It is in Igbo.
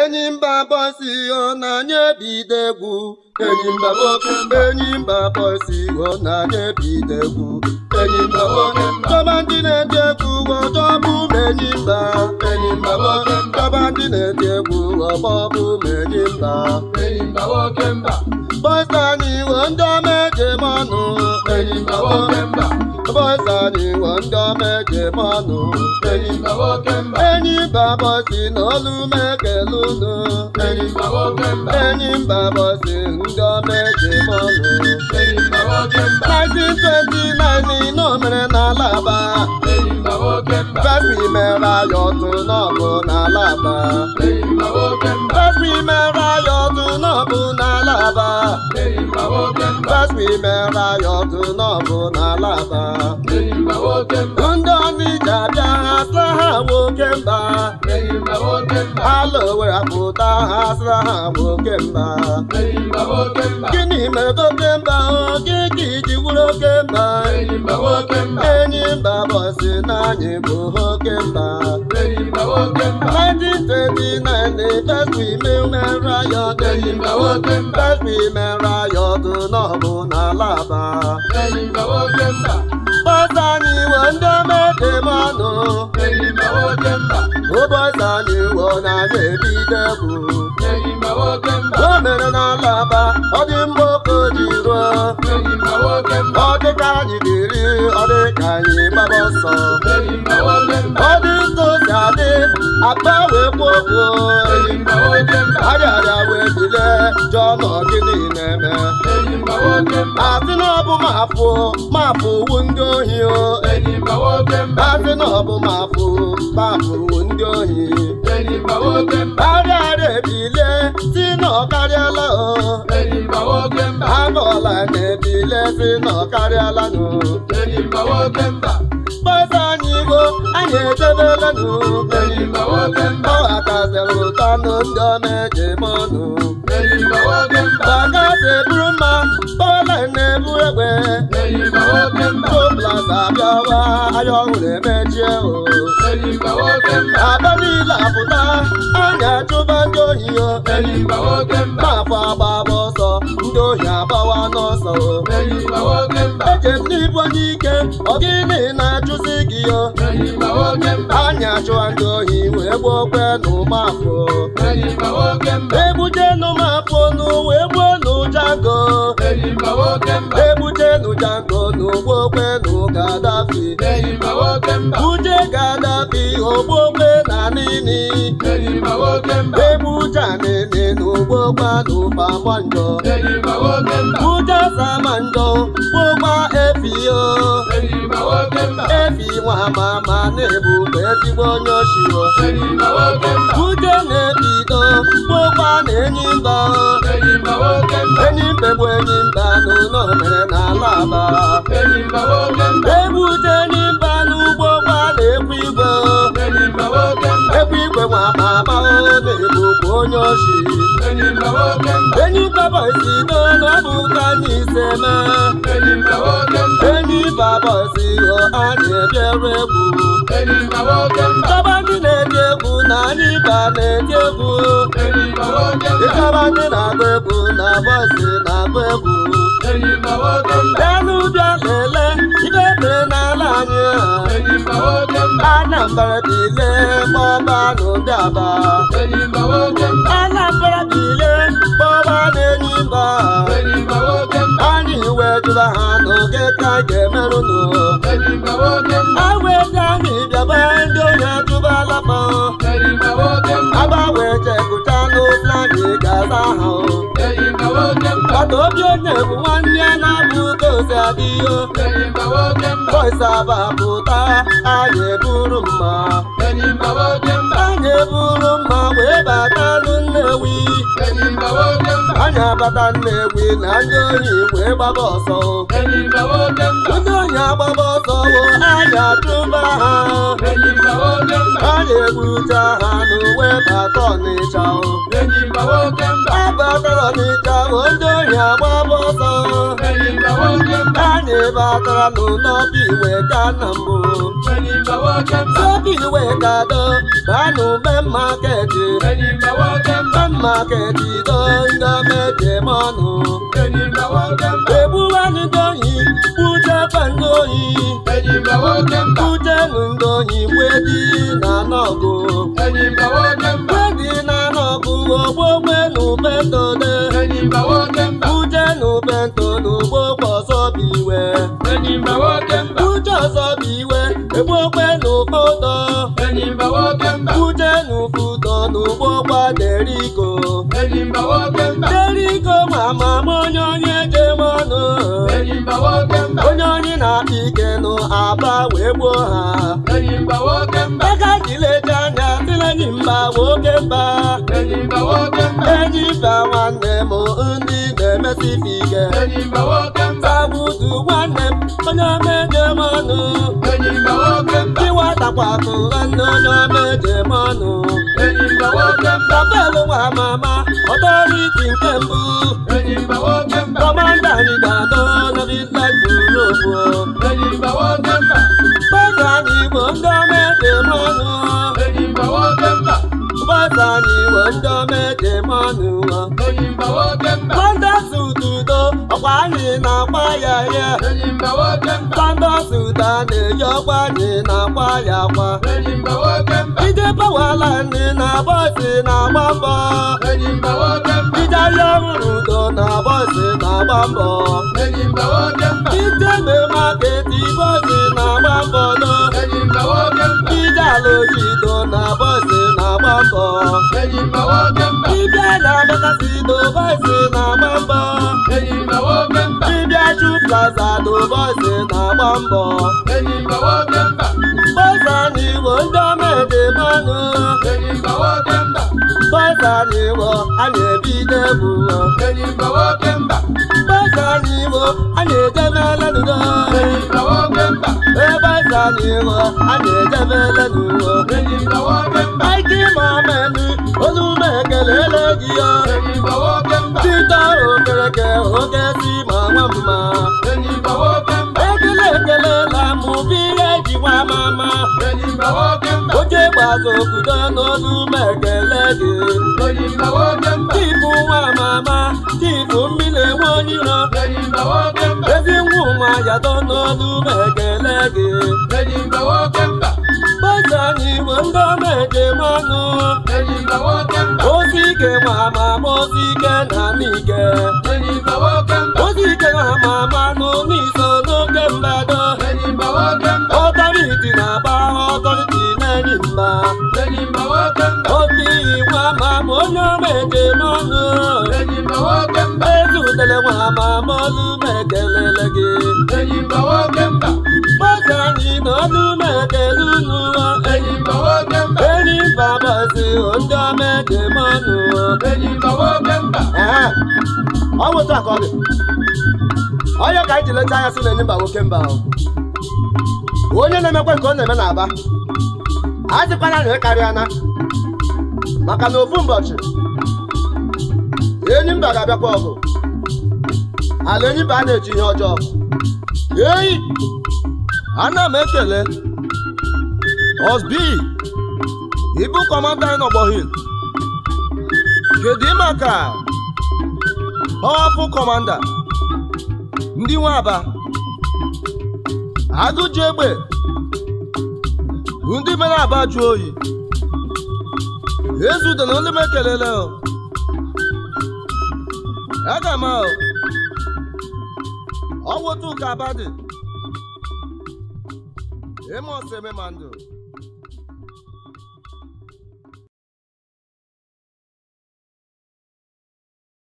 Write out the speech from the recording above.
enyi mba bosi ọ na-anya ebido egwu enyi mba nwoke enyi mba bosi ọ na-anya ebido egwu enyi mba nwoke dọba ndị na-ede egwu ọjọbụ ma enyi mba enyi mba nwoke dọba ndị na-ede egwu ọgbọbụ ma enyi mba enyi mba nwoke mba bọsa anyị ndị ọma ejem ọnụ enyi mba nwoke mba bọ́sà ni wọ́n ń jọ méje mọ́nu. ẹ̀yin gbàwọ́ kẹ́mbà. ẹ̀yin bàbọ̀ sí nọ́ọ̀lù mẹ́kẹ̀ lónà. ẹ̀yin gbàwọ́ kẹ́mbà. ẹ̀yin bàbọ̀ sí ń jọ méje mọ́nu. ẹ̀yin gbàwọ́ kẹ́mbà. nineteen twenty nine ni iná mẹ́rẹ̀ n'Alaba. ẹ̀yin gbàwọ́ kẹ́mbà. fẹ́fì mẹ́ra yọ̀tún náà kò n'Alaba. ẹ̀yin gbàwọ́ kẹ́mbà. fẹ́fì mẹ́ra yọ Gospi mere ya otu n'ọbụ n'ala aba. Ndị ọnịja bịa ha sịra ha nwoke mba. Ala Owere pụta ha sịra ha nwoke mba. Gịnị mere oke mba oge ka iji wuru oke mba? Enyi mba bọsị na anyị bụ oke mba. 1939 the first women were riot. First women enyimba wote mba ụbọchị anyị ndị omete mọnụ enyimba wote mba ụbọchị anyị wo na na-ebido o mere n'alaba ọ dị mgbe oke ji ruo enyimba wote mba ọ dịka anyị dịrị ọ dịka anyị gbaba bile jụọ nọ gịnị asị na ọ bụ mapụ mapụ wu ndị ohi asị na ọ bụ mapụ mapụ wu ndị ohi karịa ebile si na ọ karịala agọla na ebile si na ọ karịala kpọsa anyị igo anyị edebelenụ ọghakazịrị ụtọ nụ ndị ọ na-eji mọnụ baka si bụrụ mma egbe toplaza bịawa anya ọhụrụ na-emechie o abịa niile apụta anya chụba ndị ohi o afọ agbaba ọsọ ndị ohi agbawa n'ọsọ o eje m n'ibu onye ike ọ gịnị na-achụzi gị o anya chụwa ndị ohi wee gbuokwe na ụmụafọ egbuje n'ụmụ ebujenu jango n'ogbogbenu Gaddafi buje Gaddafi ogbogbe na nini ebujanene n'ogbogbanu Babanjo buje Samanjo gbogba efio efi nwa mama na-ebu ezigbo onye oshio buje na-ebido m enyi mba enyi mbe bụ enyi mba n'ụlọ mere na ala aba ebute enyi mba n'ugbo gbala ekwu igwe ekwu igwe nwa ma amaghị onye ọchị enyi baba si n'ọnọdụ ka n'ise ma enyi baba si ọ a na-ebiere egwu ịchọba ndị na-eti egwu na anyị ba na-eti egwu ịchọba ndị na-agba egwu na bọsị na-agba egwu elu bịa Anambra dị ile kpọba n'ụdaba Anambra dị ile kpọba n'enyimba anyị wetụla ha n'oge ka a ga-emerụnụ a weta anyị bịaba ndị onye atụba alaba gị ga-asa ahụ ọdụ obi onye bụ nwanne ya na-abụ dozi adịyo boisa bapụta anyị eburu mma anyị eburu mma wee bata nnewi anyị abata nnewi na ndị oyi wee gbaba ọsọ ndị oyi agbaba ọsọ anyị achụba ha onye gbuchara n'uwe bata ọnịcha ebe tara ọnịcha ohi agba ọsọ anyị batara n'ụlọ biwe ka na mbụ obiwe kado na n'ube maketi be maketi do ngoyi uje ṅụgo wedi dị na ọgụ mgbe gị na-ana ọgụ ogbogbe na ubetone uje na ubeto na ugbogbe ọzọ bụ iwe uje ọzọ bụ iwe egbogbe na ụfọdọ uje na ụfọdọ na ugbogba derigo derigo ma ma onye onye jeme ọnụ onye oyi na ike nụ aba wee gbuo ha ego anyị leje anya tilenyi mba nwoke mba enyi mba nwanne m ndị na-emesi ife ike sabudu nwanne m onye meje m ọnụ ịwatakwatụ nwanne onye meje m ọnụ tapelu nwa mama ọtọriti nke mbụ kọmanda anyị ga-adọ na bitlandi ndị omejemọnụ pandọsụ dudo ọkwa anyị na-akpa ya ya pandọsụ na-eyi ọkwa anyị na-akpa ya akwa ije pawala nne na bọsị na-agba mbọ ije ahịa ọhụrụ udo na bọsị na-agba mbọ na-agba mbọ ije ala ojii dibịa na-adọkasị n'ụbọchị na-agba mbọ dibịa chu plaza n'ụbọchị na-agba mbọ bọza na iwo ndị ọma dị mmanụ bọza na iwo a na-ebido ebu bọza na iwo a na-edemela nudo na n'ihu a na-edebe elenuwo ike ịma menu olume ekelele gị ya tita okereke oke si ma nwa mma ekele ekele na mụbi nwa mama oche gbaza obodo n'olu ma ekele gị tipu nwa mama tipu mmiri nwa onyiro ezi nwa ụmụ ayado n'olu ma gị Bọ́sà ni mo ń dán méje mọ́nu. Ẹyin ìgbàwọ́ kẹ́mbà. Ó sì ké màmá, ekele nwe ha ma mọlụ m ekelele gị enyimba nwoke mba gbasa anyị n'ọnụ m ekele unu enyimba nwoke mba enyimba bọzi ndị ọma eke m ọnụ enyimba nwoke mba ee ọ bụ akọ gị onye ka anyị ji leta anya sị na enyi mba nwoke mba onye na-emekwe nke ọ na-eme n'Aba a dịkwana na ịkarịa na maka na ofu ụbọchị enyi mba ga-abịakwa ọgụ ala enyiba a na-eji ihe ọjọọ eyi ana m ekele osbi ịbụ kọmanda anyị n'ọgbọ hil kedu maka ọhapụ kọmanda ndị nwe aba agụji egbe ndị mere aba jụọ oyi ezudena ndị m ekelele aga m ahụ ọnwụ tuka abadị emos ememandụ